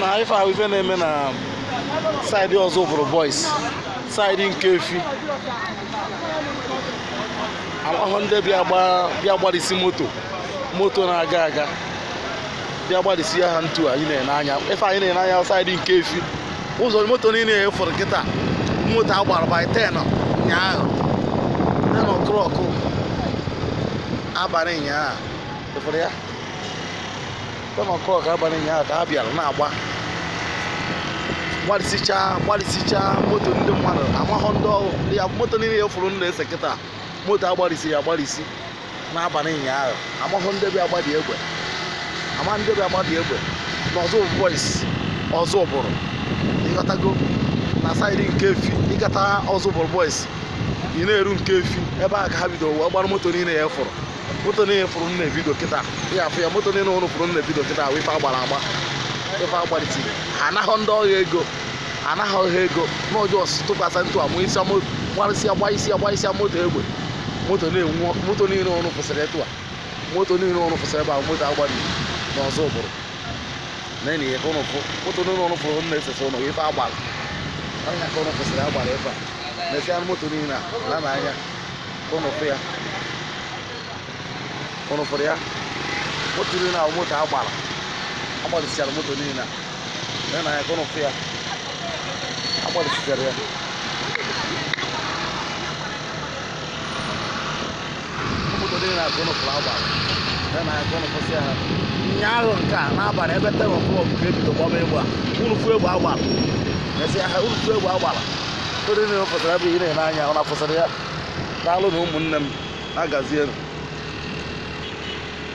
na ife ahụ ife na-eme na saidi ọzọ bụrụ boys saidi nke efi ahụhụ ndị bịa gbarịsị moto moto na-aga aga bịa gbarịsị ya ha ntu anyị na-ene anya ife anyị na-ene anya saidi nke efi ụzọ moto niile ya fọrọ kịta moto a gbara by 10 ụnyaahụ 10 o'clock abalị ụnyaahụ ịfụrụ ya kama nke ọka abalị ụnyaahụ ka ha bịara na-agba gbarịsichaa gbarịsichaa moto ndị mmadụ amahọ ndị ọrụ ya moto niile ya fụrụ ndụ ese kịta moto agbarịsiri agbarịsi n'abalị ụnyaahụ amahọ ndị bịa agbadị egbe ama ndị bịa agbadị egbe na ọzọ boys ọzọ ụbụrụ ịghọtago na saịdị nke efi ịgata ọzọ ụbụrụ boys ị na-eru nke efi ebe a ka ha bidoro wee gbara moto niile ya fụrụ moto niile fụrụ nna ebido kịta ya afụ ya moto niile ụrụ fụrụ nna ebido kịta ahụ ife agbara agba ife agbarịtiri anaghọ ndị ọhịa ego anaghị ọhịa ego n'ọjọọ tụkwasị ntụ amụ isi gbarịsịa gba isi agbaisịa moto egbe moto na-enwu moto niile ọrụ kwụsịrị etu a moto niile ọrụ kwụsịrị ebe ahụ moto agbari n'ọzọ ụbụrụ na-enye ya ka ụnụ fụ moto niile ọrụ fụrụ nna esesa ụnụ ife agbara ọhịa ka ụnụ kwụsịrị agbara ebe a mesia é moto niile né? na ala n'anya ka ụnụ fụ ya ụnụ fụrụ ya moto niile ahụ moto a gbara agbalịsịara moto niile na ya n'anya ka ụnụ fụ ya agbalịsịchara ya moto niile na ka ụnụ fụrụ agbara ya n'anya ka ụnụ fụsịa ha ụnyaahụ nke a n'abalị ebe ten o'clock ka ebido gbaba egbe a unu fụ egbe agbara mesia ha unu fụ egbe ụfọdụ niile fọsara abụghị ị na-enye anya ọ na-afọsara ya daalụ na ụmụnne m na-agazienụ